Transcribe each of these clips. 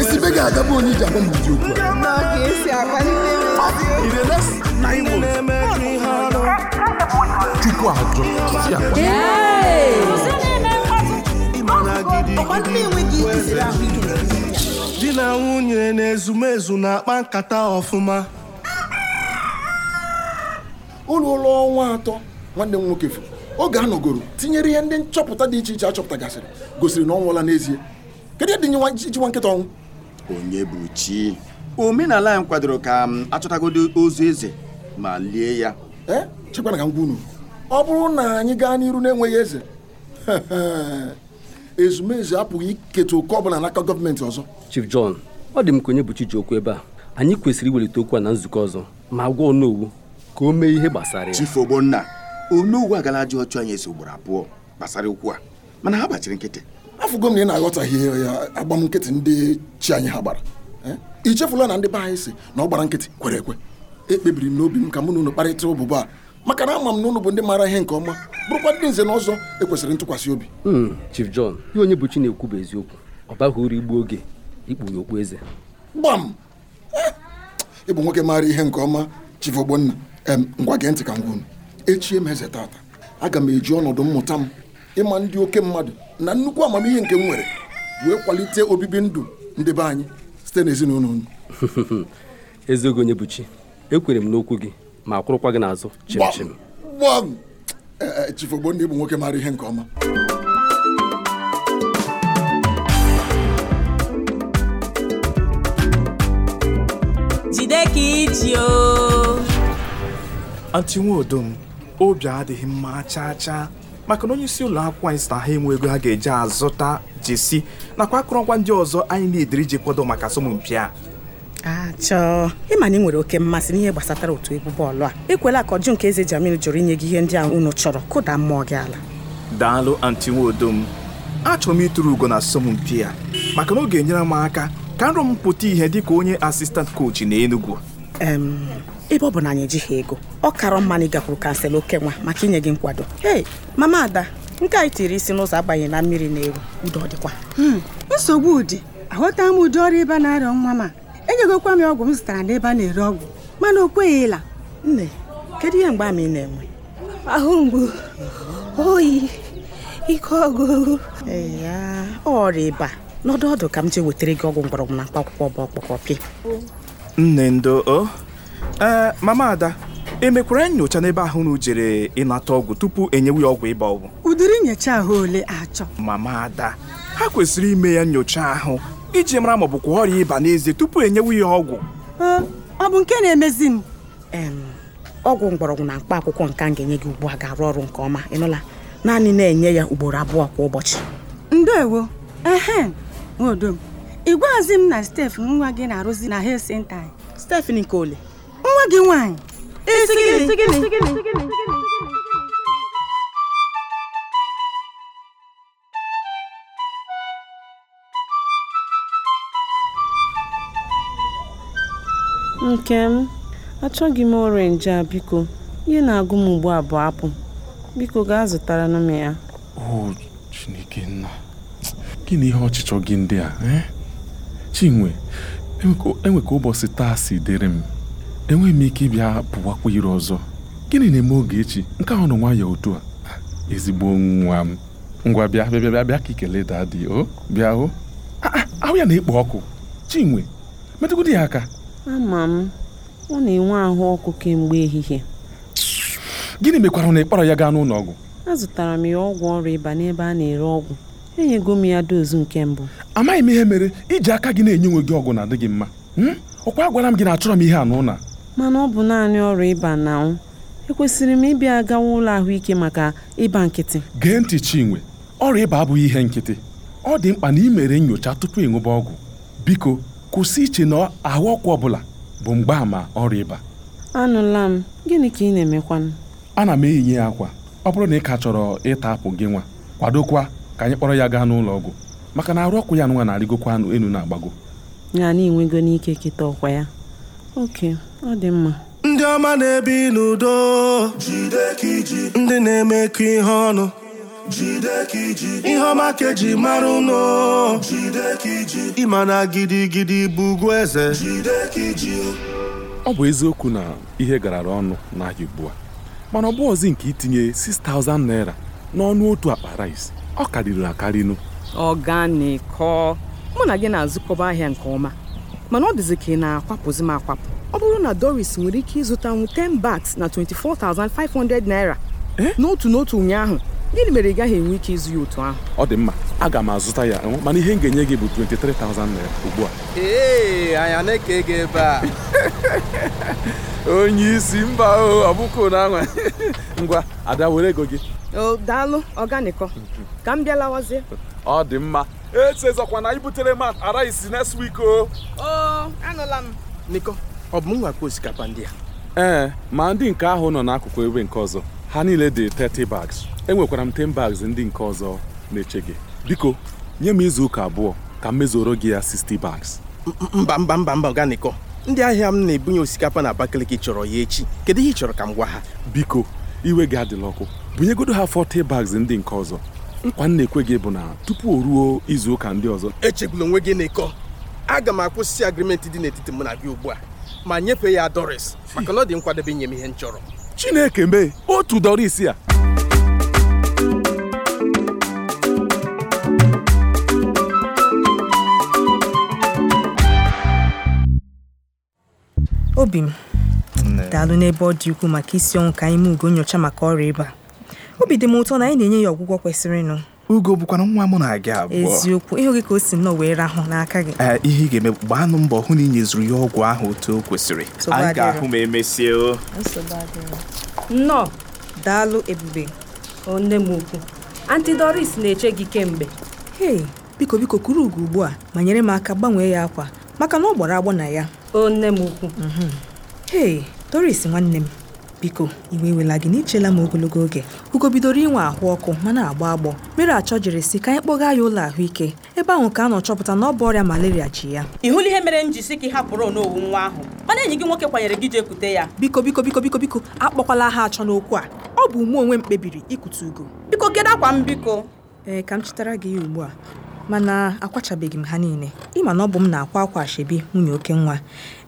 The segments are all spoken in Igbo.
esibe ga bụ onye iji m ụdị okwu chukwu ajọ di na nwunye na-ezumezu na-akpa nkata ọfụma ụlọ ụlọ ọnwa atọ nwanne m nwoke furu oge a nọgoro tinyere ihe ndị nchọpụta dị iche iche achọpụtagasịrị gosiri na ọ nwụọla n'ezie kedu ihe dị nye nwa nkịta ọnwụ onye bụ chi omenala anyị kwadoro ka achọtagodo ozu eze ma lie ya eh, ka ọ bụrụ na anyị gaa n'iru na-enweghị eze ezumezu apụghị iketa oke ọbụla n'aka gọọmenti ọzọ Chief John ọ dị m ka onye bụ chi ji okwu ebe a anyị kwesịrị iwelite okwu a na nzukọ ọzọ ma gwa ọnụ ka o mee ihe gbasara ya Chief Ogbonna agala agalaji ọchụ anyị eso ugboro abụọ gbasara ukwu a mana ha gbachiri nkịtị afọ m na ị na-aghọtaghị ya agbam nkịtị ndị chi anyị ha gbara i eh? chefula na ndị be anyị si na ọ gbara nkịtị kwere ekwe ekpebiri m n'obi m ka mụ na unu kparịta ụbụbụ a maka na ama m na ụnụ bụ ndị maara ihe nke ọma bụrụkwa ndị nze na ọzọ ekwesịrị ntụkwasị obi hmm, Chief John ihe onye bụ chi na-ekwu bụ eziokwu ọ baghị uru igbu oge ikpughe okpu eze gbam eh, ịbụ nwoke maara ihe nke ọma Chief Ogbonna ngwa gee ntị ka ngwa unu echi m tata aga m eji ọnọdụ mmụta m ịma ndị oke mmadụ na nnukwu amamihe nke m nwere wee kwalite obibi ndụ ndị be anyị site n'ezinụlọ unu eziogị onye bụ chi ekwere m n'okwu gị ma kwụrụkwa gị n'azụ chimchim gbam e, e, chifogbo ndị bụ nwoke mara ihe nke ọma jide ka iji anti nwa obi adịghị mma chaa chaa maka na onye isi ụlọ akwụkwọ anyị sita ha enwe ego ha ga-eji azụta jesi nakwa akụrụngwa ndị ọzọ anyị na-ediri ji kwado maka asọmpi a achọọ ịma na ị nwere oke mmasị n'ihe gbasatara otu egwu bọọlụ a ekwela ka ọjụ nke eze jamil jụrụ inye gị ihe ndị a unu chọrọ kụda mmụọ gị ala daalụ anti m achọrọ m ịtụrụ ugo na asọmpi a maka na ọ ga-enyere m aka ka nrọ m pụta ihe ka onye asistant kochi na Enugu ebe ọ bụ na anyị ejighị ego ọ karọ mma na ị gakwuru kansel nwa maka inye gị nkwado ee mama ada nke anyị tiri isi n'ụzọ abanye na mmiri na-eru udo dịkwa hmm, nsogbu ụdị aghọta m ụdị ọrụ ịba na arịọ nwa ma enyegokwa m ọgwụ m zụtara n'ebe a na-ere ọgwụ mana o ịla nne kedu ihe mgbe ama na-enwe ahụ mgbu oyi ike ọgụgụ ya ọrịa ịba n'ọdụ ọdụ ka m ji wetara gị ọgwụ mgbọrọgwụ na mkpa akwụkwọ bụ ọkpọkọpị nne ndo eh, mama ada emekwara nyocha n'ebe ahụ unu jere ịnata ọgwụ tupu enyewe ya ọgwụ ịba ọgwụ udiri nyocha ahụ ole achọ mama ada ha kwesịrị ime ya nyocha ahụ iji mara ma ọ bụkwa ọrịa ịba n'ezie tupu enyewe ya ọgwụ ọ bụ nke na-emezi m ọgwụ mgbọrọgwụ na mkpa akwụkwọ nke ga-enye gị ugbu a ga-arụ ọrụ nke ọma ịnụla naanị na-enye ya ugboro abụọ kwa ụbọchị ndewo ehe nwodo ị gwaghịzi m na Stef nwa gị na-arụzi na nke ole nwa gị nwaanyị Este gini, este gini, este gini. nke m achọghị m orenji a biko ihe na-agụ m ugbu a bụ apụ biko gaa zụtara m ya o gịnị ihe ọchịchọ gị ndị a eh? chinwe enwe ka ụbọchị taa si dịrị m enweghị m ike ịbịa pụwakwa ire ọzọ gịnị na-eme oge echi nke ahụ nọ nwayọọ otu a ah, ezigbo nwa m ngwa bịa bịa bịa bịa ka ikele daa dị o bịa hụ ah, ah, ahụ ya na-ekpo ọkụ chinwe metụgodi ya aka ama m ọ na-enwe ahụ ọkụ kemgbe ehihie gịnị mekwara na ịkpọrọ ya gaa n'ụlọ ọgwụ azụtara m ya ọgwụ ọrịa ịba n'ebe a na-ere ọgwụ enyego m ya dozu nke mbụ amaghị m ihe mere iji aka gị na-enye onwe gị ọgwụ na-adịghị mma hmm? ọkwa agwara m gị na achọrọ m ihe anụ na Mana ọ bụ naanị ọrịa ịba na-anwụ. Ekwesịrị m ịbịa gawa ụlọ ahụike maka ịba nkịtị? Gee ntị Chinwe, ọrịa ịba abụghị ihe nkịtị. Ọ dị mkpa na imere mere nyocha tupu ịṅụba ọgwụ. Biko, kwụsị iche na ahụ ọkụ ọbụla bụ mgbaàmà ọrịa ịba. Anụla m, gịnị ka ị na-emekwanụ? Ana m eyinye akwa. Ọ bụrụ na ị ka chọrọ ịta apụ gị nwa, kwadokwa ka anyị kpọrọ ya gaa n'ụlọ ọgwụ maka na arụ ọkụ ya nwa na-arịgokwa enu na-agbago ya na inwego n'ike kịta ọkwa ya ok ọ dị mma ndị ọma na-ebi n'udo ndị na-eme ka ihe ọnụ ihe ọma ka mara ụnụ ịma na gidigidi bụ ugwu eze ọ bụ eziokwu na ihe garara ọnụ n'ahịa ugbu a mana ọ bụ nke itinye 6,000 naira n'ọnụ otu akpa rice ọ karịrị akarịnụ ọganikọ mụ na gị na-azụkọba ahịa nke ọma mana ọ dịzị ka ị na-akwapụzi m akwapụ ọ bụrụ na doris nwere ike ịzụta nwu 10 bags na 24,500 naira eh? n'otu n'otu ụnyaahụ gịnị mere ị gaghị enwe ike ịzụ ya otu ahụ ọ dị mma aga m azụta ya mana ihe m ga-enye gị bụ 23,000 naira ugbu a ee anya na-eke gị ebe a onye isi mba na ngwa ada were ego gị daalụ ọganikọ mm-hmm. ka m bịa lawazie ọ dị mma echezọkwa na ibutere m araisi next week oh. o anụla m niko ọ bụ m osikapa ndị a ee eh, ma ndị nke ahụ nọ n'akụkụ ebe nke ọzọ ha niile dị 30 bags enwekwara m 10 bags ndị nke ọzọ na-eche gị biko nye m izu ụka abụọ ka m mezuoro gị ya 60 bags mba mba mba mba ọganiko ndị ahịa m na-ebunye osikapa na Abakaliki chọrọ ya echi kedu ihe ị chọrọ ka m gwa ha biko iwe gị adịla ọkụ bunyegodo ha 40 bags ndị nke ọzọ nkwa m na-ekwe gị bụ na tupu o ruo izu ụka ndị ọzọ echegbula onwe gị n'ịkọ aga m akwụsị agrimenti dị n'etiti mụ na gị ugbu a ma nyefee ya Doris maka na ọ dị nkwadebe inye m ihe m chọrọ Chineke mee otu Doris a obi m daalụ n'ebe ọ dị ukwuu maka isi ọnwụ ka anyị mee ugo nyocha maka ọrịa ịba obi dị m ụtọ na anyị na-enye ya ọgwụgwọ kwesịrịnụ ugo bụkwana nwa mụ na gị abụọ eziokwu ịhụ gị ka o si nnọọ wee rahụ n'aka gị ihe ị ga-eme gbaanụ mbọ hụ na i nyezuru ya ọgwụ ahụ otu o kwesịrị anyị ga-ahụ ma emesie o nnọọ daalụ ebube nne m ukwu anti doris na-eche gị kemgbe hei biko biko kuru ugo ugbu a ma nyere m aka gbanwee ya akwa maka na ọ gbara agbọ na ya o nne m ukwu mhm. hei doris nwanne m biko iwe ewela gị na ichela m ogologo oge ugo bidoro inwe ahụ ọkụ ma na-agbọ agbọ mere achọ jiri si ka anyị kpọga ya ụlọ ahụike ebe ahụ ka a nọ chọpụta na ọ bụ ọrịa malaria ji ya ị hụla ihe mere m ji si gị hapụrụ n'owu nwa ahụ mana enyi gị nwoke kwanyere gị jeekute ya biko biko biko biko biko akpọkwala ha achọ n'okwu a ọ bụ mụ onwe m kpebiri ikute ugo biko geda akwa m biko ee ka m chịtara gị ya ugbu a Mana akwachabeghị m ha niile, ịma na ọ bụ m na-akwa akwa ashebi nwunye oke nwa,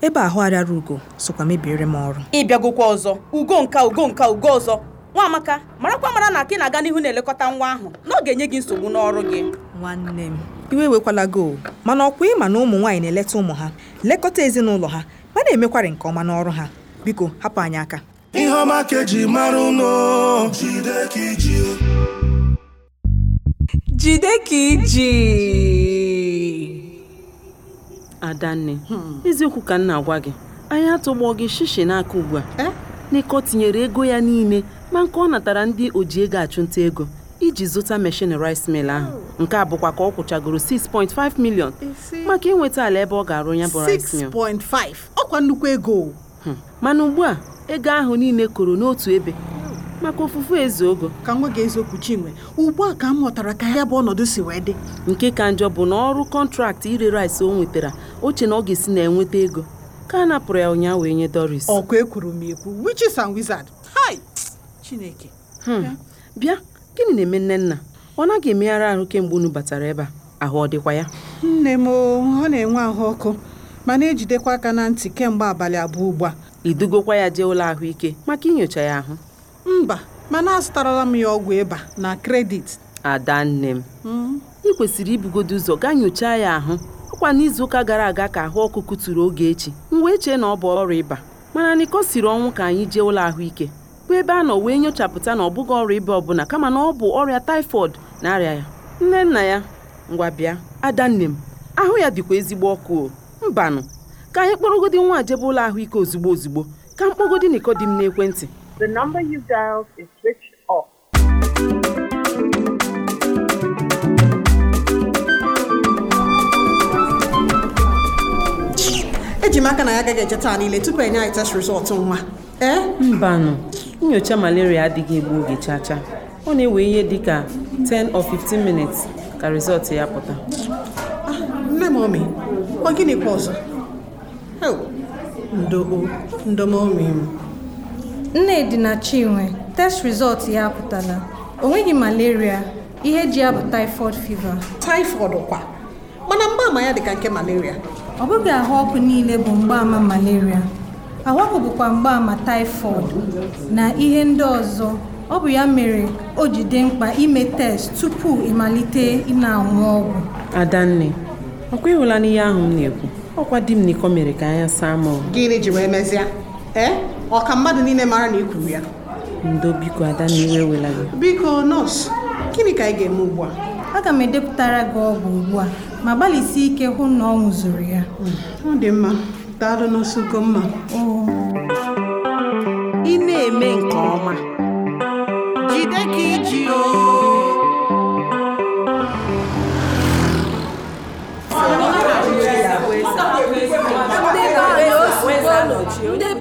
ebe ahụ arịara Ugo sokwa mebiere m ọrụ. Ị ọzọ, Ugo nka Ugo nka Ugo ọzọ. Nwamaka, marakwa mara na ka ị na-aga n'ihu na-elekọta nwa ahụ na ọ ga-enye gị nsogbu n'ọrụ gị. Nwanne m, iwe ewekwala gị o, mana ọkwa ịma na ụmụ nwaanyị na-eleta ụmụ ha, lekọta ezinụlọ ha, ma na-emekwarị nke ọma n'ọrụ ha. Biko, hapụ anyị aka. Ihe ọma ka eji mara jide ka iji jide ka iji adanne eziokwu ka nna na-agwa gị anyị atụgbọ gị shishi n'aka ugbu a eh? n'ịkọ tinyere ego ya niile ma nke ọ natara ndị oji ego achụnta ego iji zụta meshin rice mill ahụ oh. nke a bụkwa ka ọ kwụchagoro 6.5 million maka inweta ala ebe ọ ga-arụ ya bụ rice 6.5 ọkwa nnukwu ego hmm. mana ugbu a ego ahụ niile koro n'otu ebe maka ofufu eze ogo ka nwa gị eziokwu chinwe ugbu a ka m ghọtara ka ya bụ ọnọdụ si wee dị nke ka njọ bụ na ọrụ kọntraktị ire rice o nwetara oche na ọ ga-esi na enweta ego ka a napụrụ ya ụnyaahụ wee nye Doris ọkụ ekwuru m ekwu witches and wizards chineke hmm. bịa gịnị na-eme nne nna ọ naghị emegharị ahụ kemgbe unu batara ebe a ahụ ọ dịkwa ya nne m ọ na-enwe ahụ ọkụ ma na-ejidekwa aka na ntị kemgbe abalị abụọ ugbu a idugokwa ya jee ụlọ ahụike maka inyocha ya ahụ mba mana azụtarala m ya ọgwụ ịba na kredit adanne m ị kwesịrị ibugodo ụzọ gaa nyochaa ya ahụ ọkwa n'izuụka gara aga ka ahụ ọkụkụ tụrụ oge echi m wee chee na ọ bụ ọrụ ịba mana nịkọ siri ọnwụ ka anyị jee ụlọ ahụike bụ ebe a nọ wee nyochapụta na ọ bụghị ọrịa ịba ọbụla kama na ọ bụ ọrịa taifọd na-arịa ya nne nna ya ngwa bịa adanne m ahụ ya dịkwa ezigbo ọkụ mbanụ ka anyị kpọrọgodi nwa jebe ụlọ ahụike ozugbo ozugbo ka mkpọgodi niko dị m n'ekwentị The number you dialed is switched off. ejimaka aka na ya agaghị eche taa niile tupu enye anyị test resọt nwa ee eh? mbanụ nyocha malaria adịghị egbu oge chacha ọ na-ewe ihe dị ka 10 or 15 minutes ka resọt ya pụta ah, nne m omi ọ gịnịkwa ọzọ ndo ndomomi m Nnedi na Chinwe test result ya apụtala o nweghị malaria ihe ji ya bụ typhoid fever. typhoid kwa mana mgbaama ya dịka nke malaria ọ bụghị ahụ ọkụ niile bụ mgbaama malaria ahụ ọkụ bụkwa mgbaama typhoid na ihe ndị ọzọ ọ bụ ya mere o ji dị mkpa ime test tupu ịmalite ịna anwụ ọgwụ adanne ọkwa ịhụla n'ihe ahụ m na-ekwu ọkwa di m n'iko mere ka anya saa m gịnị ji wee mezie ọka mmadụ niile mara na ị kwuru ya ndo biko ada na iwe wela gị biko nọọsụ gịnị ka anyị ga-eme ugbu a aga m edepụtara gị ọgwụ ugbu a ma gbalịsi ike hụ na ọ ṅụzuru ya ọ dị mma daalụ nọọsụ Ugomma ị na-eme nke ọma jide ka iji ndị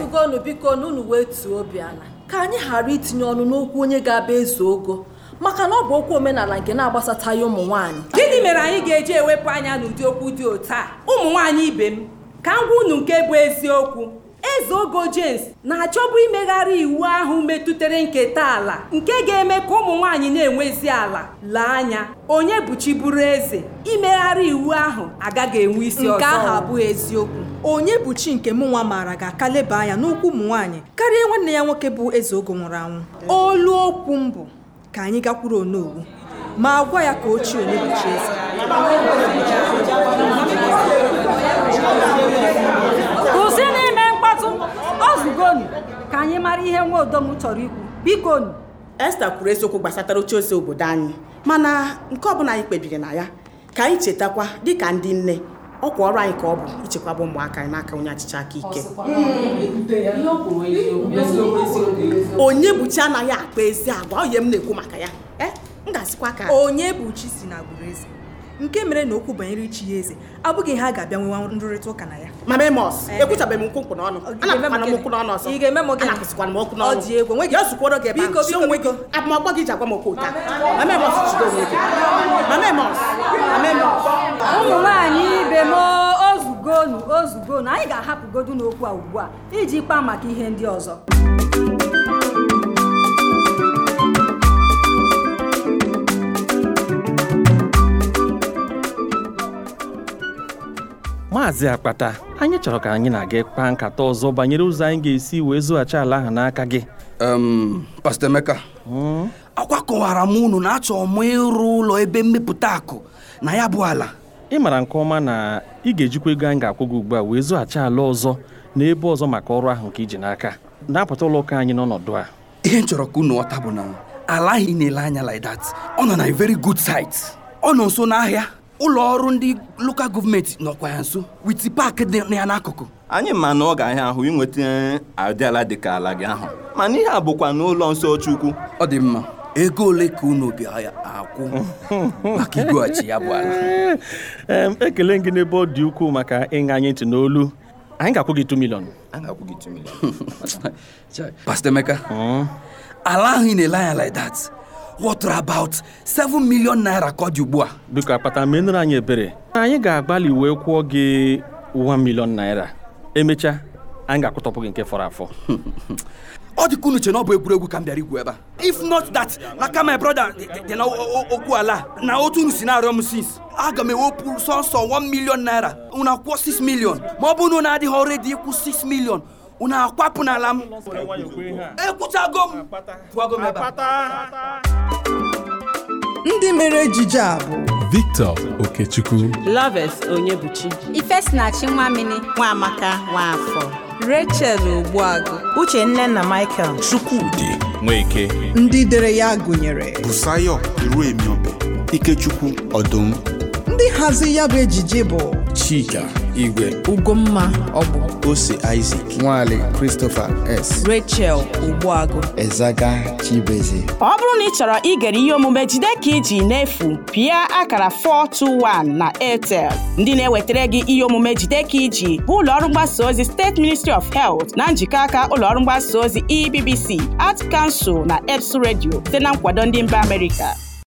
bikonu biko na unu wee tuo obi ala ka anyị ghara itinye ọnụ n'okwu onye ga-aba ezu ogo maka na ọ bụ okwu omenala nke na agbasata ya ụmụ nwanyị. gịnị mere anyị ga-eji ewepụ anya n'ụdị okwu dị otu a ụmụ nwanyị ibe m ka m unu nke bụ eziokwu eze ogo james na-achọbụ imegharị iwu ahụ metụtara nketa ala nke ga-eme ka ụmụ nwaanyị na-enwezi ala lee anya onye bụchiburu eze imegharị iwu ahụ agaghị enwe isi ọzọ nke ahụ abụghị eziokwu onye bụ chi nke m nwa maara ga-aka leba anya n'ụkwụ ụmụ nwaanyị karịa nwanne ya nwoke bụ eze ogo nwụrụ anwụ olu okwu mbụ ka anyị gakwuru onowu ma gwa ya ka ochie onye bụ chi eze bikonu ka anyị mara ihe nwa odom chọrọ ikwu bikonu Esta kwuru eziokwu gbasatara ozi obodo anyị mana nke ọbụla anyị kpebiri na ya ka anyị chetakwa dịka ndị nne ọkwa ọrụ anyị ka ọ bụ ichekwaba ụmụaka anyị n'aka onye achịcha aka ike hmm, onye buchi anaghị akpa ezi agwa onye m na-ekwu maka ya eh, onye buchi si na agbụrụ eze nke mere na okwu banyere ichi ya eze abụghị ha ga-abịa nwewa nrụrịta ụka na ya mama emos ekwuchabeghị m n'ọnụ ị egwu gị gị ji agwa m ụmụ nwanyị ibe anyị ga-ahapụgodu n'okwu a ugbu a iji kpaa maka ihe ndị ọzọ maazị akpata anyị chọrọ ka anyị na aga kpaa nkata ọzọ banyere ụzọ anyị ga-esi wee zụghachi ala ahụ n'aka gị pastọ Emeka hmm? akwa kọwara m unu na achọ m ịrụ ụlọ ebe mmepụta akụ na ya bụ ala ị mara nke ọma na ị ga-ejikwa ego anyị ga-akwụ gị ugbu a wee zụghachi ala ọzọ na ebe ọzọ maka ọrụ ahụ nke iji n'aka na-apụta ụlọ ụka anyị n'ọnọdụ a ihe m chọrọ ka unu ọta bụ na ala ahụ ị na-ele anya like ọ nọ na very good site ọ nọ nso n'ahịa ụlọ ọrụ ndị lokal gọọmenti nọkwa ya nso wit pak dị ya n'akụkụ anyị ma na ọ ga-ahịa ahụ ịnweta adịala ala dịka ala gị ahụ mana ihe a bụkwa n'ụlọ nsọ Chukwu ọ dị mma ego ole ka unu bịa akwụ maka igweghachi ya bụ ala ekele gị n'ebe ọ dị ukwuu maka ịṅa anyị ntị n'olu anyị ga-akwụ gị 2 million anyị Emeka hmm? ala ahụ ị na-ele anya like that water about 7 million naira ka ọ dị ugbu a biko akpata menụrụ anyị ebere anyị ga-agbalị wee kwụọ gị 1 million naira emechaa anyị ga-akwụtọpụ gị nke fọrọ afọ ọ dị unu na ọ bụ egwuregwu ka m bịara ikwu ebe a if not that na ka my brother dị na ala na otu unu si na-arịọ m since aga m ewepụ sọsọ 1 million naira unu akwụọ 6 million ma ọ na adịghị ọrụ dị ịkwụ 6 million unu akwapụ n'ala m ndị mere ejije a bụ Victor Okechukwu Loves Onyebuchi Ifesinachi Nwamini Nwamaka Nwafọ Rachel Ogbuagụ Uche nne na Michael Chukwudi Nweke ndị dere ya gụnyere Busayo Iruemiobe Ikechukwu Ọdụm ndị hazi ya bụ ejije bụ Chika Igwe Ugomma Ọbụ Ose Isaac Nwale Christopher S. Rachel Ogbuagu Ezaga Chibeze ọ bụrụ na ị chọrọ igere ihe omume jide ka iji n'efu pịa akara 421 na Airtel ndị na-ewetara gị ihe omume jide ka iji bụ ụlọọrụ mgbasa ozi steeti ministry of health na njikọ aka ụlọọrụ mgbasa ozi ebbc art kansụl na eps redio site na nkwado ndị mba amerịka